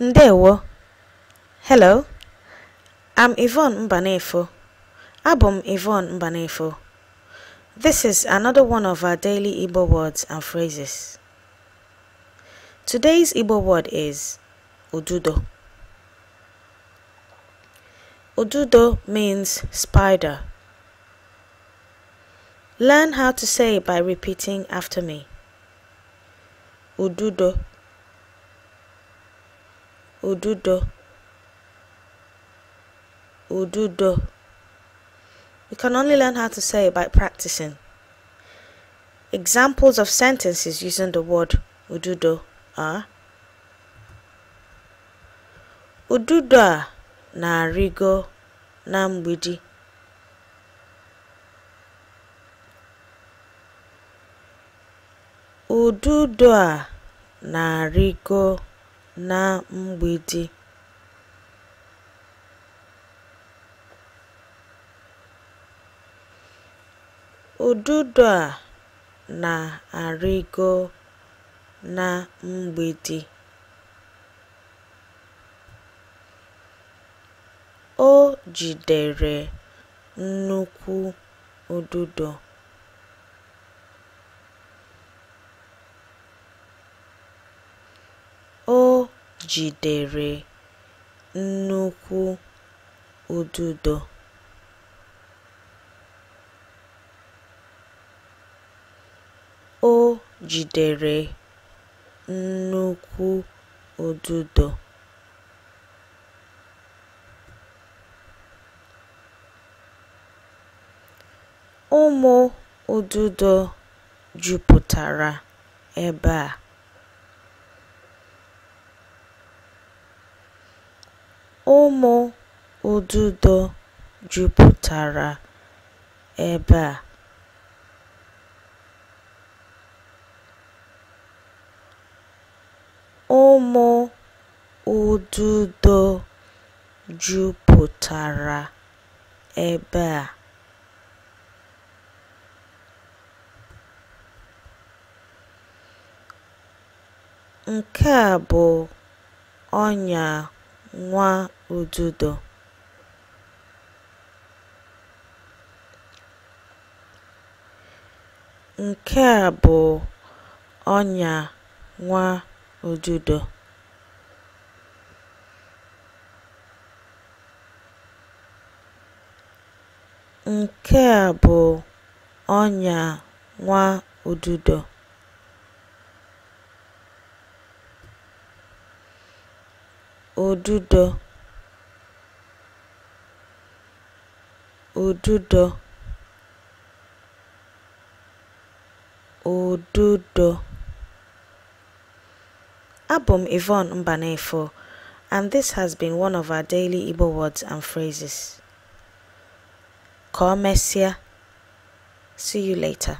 Ndewo. Hello. I'm Yvonne Mbanefo. Abum Yvonne Mbanefo. This is another one of our daily Igbo words and phrases. Today's Igbo word is Ududo. Ududo means spider. Learn how to say it by repeating after me. Ududo. Ududo. Ududo. You can only learn how to say it by practicing. Examples of sentences using the word ududo are Ududo narigo na-arịgo na mgbidi. Ududo a na na mgbede ududo a na-arịgo na mgbidi o jidere nnukwu ududo jidere nnukwu ududo o jidere nnukwu ududo ụmụ ududo jupụtara ebe a. Ụmụ ududo jupụtara ebe a. Ụmụ ududo jupụtara ebe a. Nke a bụ ọnya nwa ududo nke a bụ ọnya nwa ududo bụ ọnya nwa ududo ududo ududo ududo Abum Yvonne Mbanefo and this has been one of our daily Igbo words and phrases. Komesia. See you later.